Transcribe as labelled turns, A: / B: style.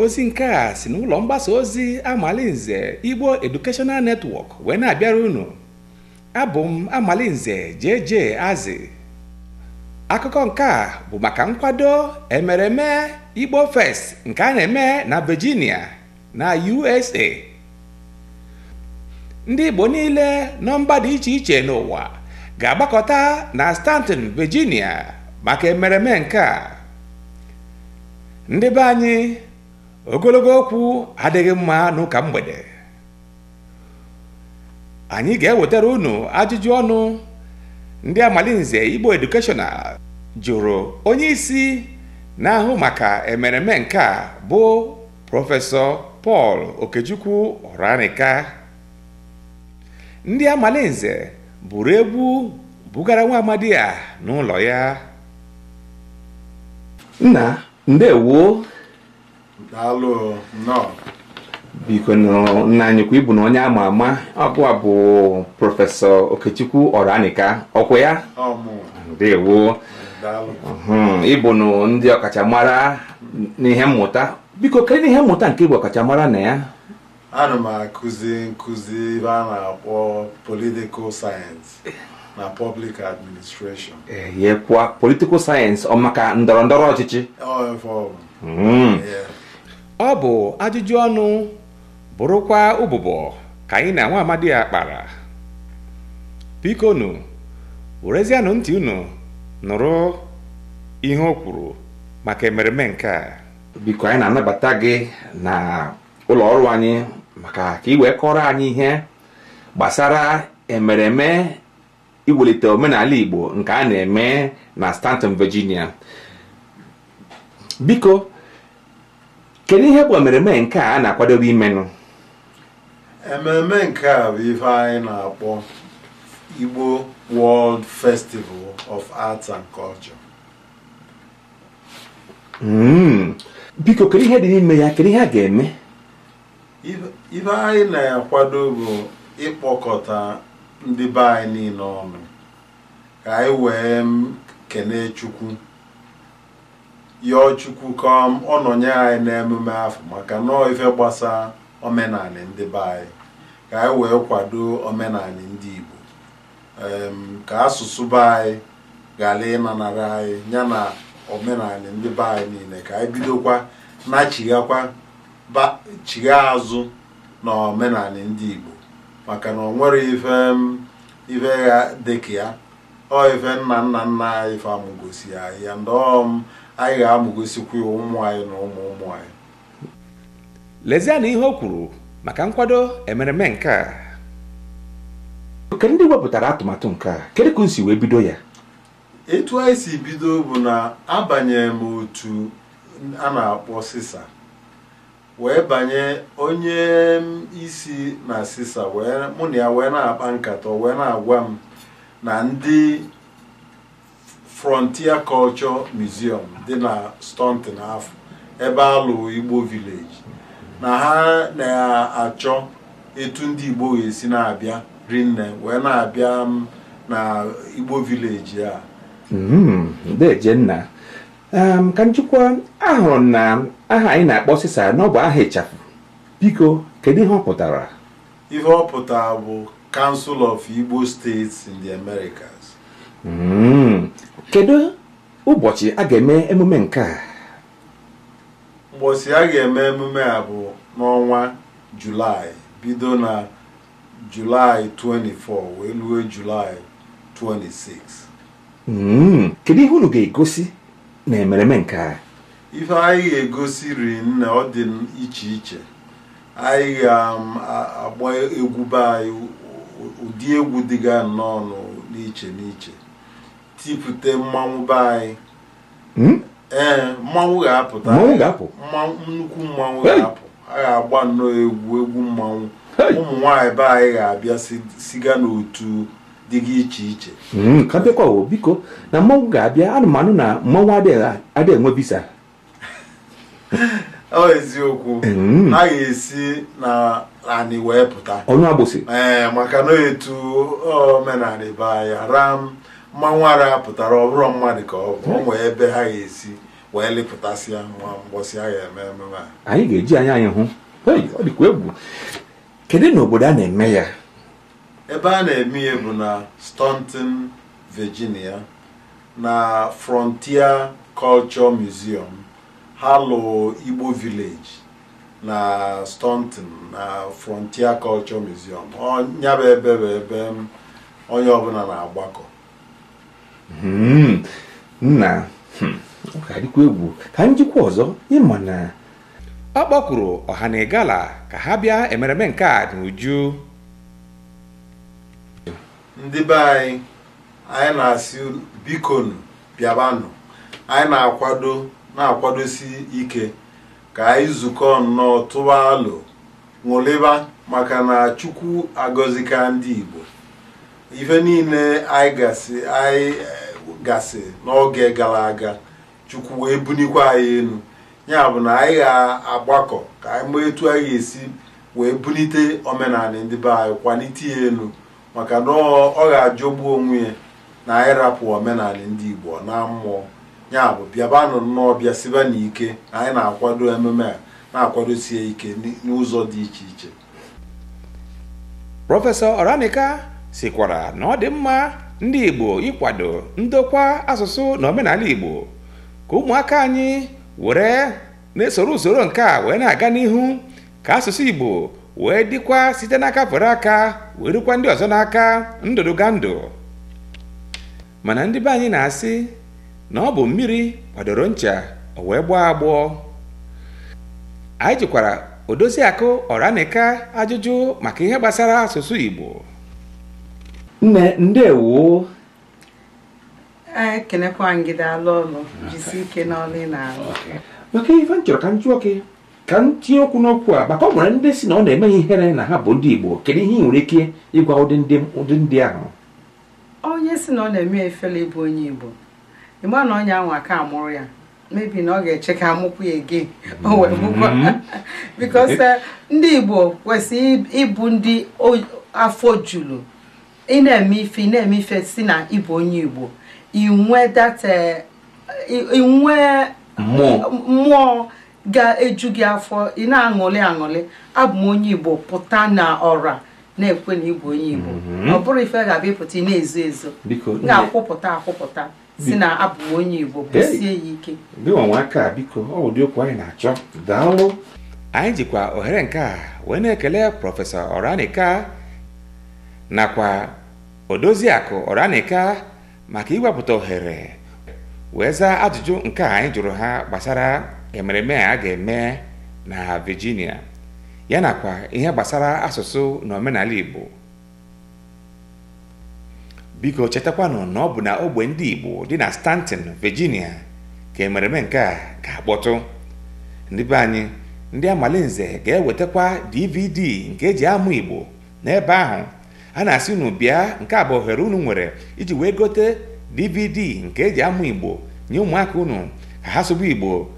A: ozi nke a si n'ụlọ mgbasa ozi Amalinze Igbo Educational netwọk wee na-abịara unu abụ m Amalinze JJ Azị akụkọ nke a bụ maka nkwado emereme Igbo Fest nke a na-eme na Virginia na USA ndị Igbo niile nọ mba dị iche iche n'ụwa ga-agbakọta na Stanton Virginia maka emereme nke a ndị be anyị ogologo okwu adịghị mma n'ụka mgbede anyị ga-ewetara unu ajụjụ ọnụ ndị amalinze igbo edukeshọnal jụrụ onye isi na-ahụ maka emereme nke a bụ prọfesọ Pọl Okechukwu Ọranika ndị amalinze buru egwu bugara nwa amadi a n'ụlọ ya nna ndewo
B: daalụ nnọọ
A: biko nna anyịkwa ịbụ na onye ama ama ọbụa bụ prọfesọ okechukwu ọranika ọkwa ya ndewo ịbụ na ndị ọkachamara n'ihe mmụta biko kedụ n'ihe mmụta nke ịbụ ọkachamara na ya
B: ana m akụzi nkụzi ebe a na-akpọ political science na public administration e,
A: yekwa political science ọ maka ọchịchị ọ bụ ajụjụ ọnụ bụrụkwa ụbụbọ ka anyị na nwa amadi ya kpara bikonu werezianụ ntị unu nụrụ ihe o kwuru maka emereme nke a biko anyị na-anabata gị na ụlọ ọrụ anyị maka ka kọrọ anyị ihe gbasara emereme iwelite omenala Igbo nke a na-eme na Stanton Virginia biko kedu ihe bụ ememe nke a na-akwadobe imenụ
B: ememe nke a bụ ife anyị na-akpọ Igbo World Festival of Arts and Culture
A: hmm. biko kedu ihe dị n'ime ya kedu ihe a ga-eme
B: ife anyị na-akwado bụ ịkpọkọta ndị be anyị niile ọnụ ka anyị wee kelee Chukwu yọọ chukwu ka ọ nọnye anyị n'emume afọ maka nọọ ife gbasa omenanị ndị be anyị ka anyị wee kwado omenanị ndị Igbo ka asụsụ be anyị ghara ịnanara anyị ya na omenanị ndị be anyị niile ka anyị bidokwa na-achighakwa chigha azụ na omenanị ndị Igbo maka na ọ nwere ife ife ya dịka ya ọ ife nna nna nna anyị ife amụgosi anyị ya ndọọm um, anyị ga amụgosikwu ụmụ anyị na ụmụ ụmụ anyị
A: lezie na ihe o kwuru maka nkwado emereme nke a nke ndị wepụtara atụmatụ nke a kedu ka o si wee bido ya
B: etu anyị si bido bụ na abanyere m otu a na-akpọ sisa wee banye onye isi na sisa mụ na ya wee na-akpa nkata wee na-agwa m na ndị Frontier Culture Museum dị na Staunton afọ ebe alụ Igbo Village na ha na-achọ etu ndị Igbo ga-esi na-abịa rinne wee na-abịa na Igbo Village a
A: hmm, Dejenna ka njikwa ahụrụ na aha anyị na-akpọ sisa na ọ bụ aha ịchafụ biko kedu ihe ọ pụtara
B: ihe ọ pụtara bụ Council of Igbo States in the Americas
A: hmm. kedu ụbọchị a ga-eme emume nke a
B: ụbọchị a ga-eme emume a bụ n'ọnwa julaị bido na julaị 24 wee ruo julaị 26
A: hmm, kedu ihe unu ga-egosi na emereme nke a
B: ife anyị ga-egosi riri ọ dị iche iche anyị ga-agba um, egwu be anyị ụdị egwu dịga nnọọ n'iche n'iche tipụte mmanwụ be anyị hmm? ee eh, mmanwụ ga-apụta mmanwụ nnukwu mmanwụ ga-apụ a ga-agba nnọọ egwu egwu mmanwụ ụmụ nwaanyị be anyị ga-abịa siga n'otu dịga iche iche hmm,
A: ka bịakwa biko na mmanwụ ga-abịa anụmanụ na mmanwụ adịghị enwe bisa
B: ọ eziokwu
A: hmm. a
B: ga-esi na anị wee pụta ọnụ agbụsị ee eh, maka na etu omenala be anyị ram mma nwara pụtara ọbụrụ mmadụ ka ọ bụ nwee ebe ha ga-esi wee lịpụtasịa nwa mgbọsị ha ga-eme ememe a
A: anyị ga-eji anya anyị hụ ọ dịkwa egwu kedu na obodo a na-eme ya
B: ebe a na-eme ya bụ na stonton Virginia na Frontier Culture Museum ha lụọ Igbo Village na stonton na Frontier Culture Museum ọ nyaba ebe bụ ebe onye ọbụla na-agbakọ
A: Hmm. nna hmm. ọ ga-adịkwa egwu ka njikwa ọzọ ịma na ọ kpọkwuru ọha na ịgala ka ha bịa emereme nke a n'uju
B: ndị be anyị anyị na-asị bikonu bịabanụ anyị na-akwado na-akwadosi ike ka anyị zukọ nnọọ tụwa alo ṅụlịba maka na Chukwu agọzika ndị Igbo ife niile anyị gasị eh, gasị n'oge gara aga chukwu wee bunikwa anyị elu ya bụ na anyị ga-agbakọ ka anyị maa etu anyị ga-esi wee bunite omenala ndị be anyị kwalite ya elu maka na ọ ga-ajọgbu onwe ya na anyị omenala ndị igbo na mmụọ ya bụ bịabanụ nnọọ bịa siba n'ike na anyị na-akwado ememe a na-akwadosie ike n'ụzọ dị iche iche
A: prọfesọ Ọranika sikwara na ọ dị mma ndị Igbo ịkwado ndokwa asụsụ na omenala Igbo ka ụmụaka anyị were na-esoro usoro nke a wee na-aga n'ihu ka asụsụ Igbo wee dịkwa site n'aka fere aka wee rukwa ndị ọzọ n'aka ndụdụga ndụ mana ndị be anyị na-asị na ọ bụ mmiri kwadoro ncha o wee gbọọ agbọọ anyị jikwara odozi akụ ọranika ajụjụ maka ihe gbasara asụsụ Igbo nne ndewo ekelekwa gị daalụ ọlụ jisi ike ị na-alụ maka ife m chọrọ ka m jụọ gị ka m tinye okwu n'okwu a maka ọ nwere ndị si na ọ na emeghị ihere na ha bụ ndị Igbo kedu ihe ị nwere ike ịgwa ụdị ndị ahụ onye si na ọ na-eme efela ịbụ onye Igbo ịgba na onye anwa ka amụrụ ya mebi na ọ ga-eche ka amụkwu ya ege mm-hmm. because eh, ndị Igbo kwesịrị ịbụ ndị afọ juru ị na-eme ife ị na-eme ife si na ịbụ onye Igbo inwe eh, mmụọ ga-eju gị afọ ị na-aṅụlị aṅụlị abụ m onye Igbo pụta na ọra na-ekwe na ịbụ onye Igbo mhm. ọ bụrụ ife ga-abịa ịpụta ị na-ezo ezo na-akwụpụta akwụpụta si na abụ onye Igbo kwụsie ya ike aka biko ọ ụdị okwu anyị na-achọ daalụ anyị jikwa ohere nke a wee na-ekele prọfesọ Oranika nakwa odoziakụ ọranika maka iwepụta ohere wee zaa ajụjụ nke a anyị jụrụ ha gbasara emereme a ga-eme na Virginia yana kwa ihe gbasara asụsụ na omenala Igbo biko chetakwanụ na ọ bụ na ogbe ndị Igbo dị na Stanton Virginia ka emereme nke a ga-akpọtụ ndị be anyị ndị amalinze ga-ewetakwa DVD nke eji amụ Igbo n'ebe ahụ a na-asị unu bịa nke a bụ ohere unu nwere iji wee gote dvd nke eji amụ igbo nye ụmụaka unu ka ha sobe igbo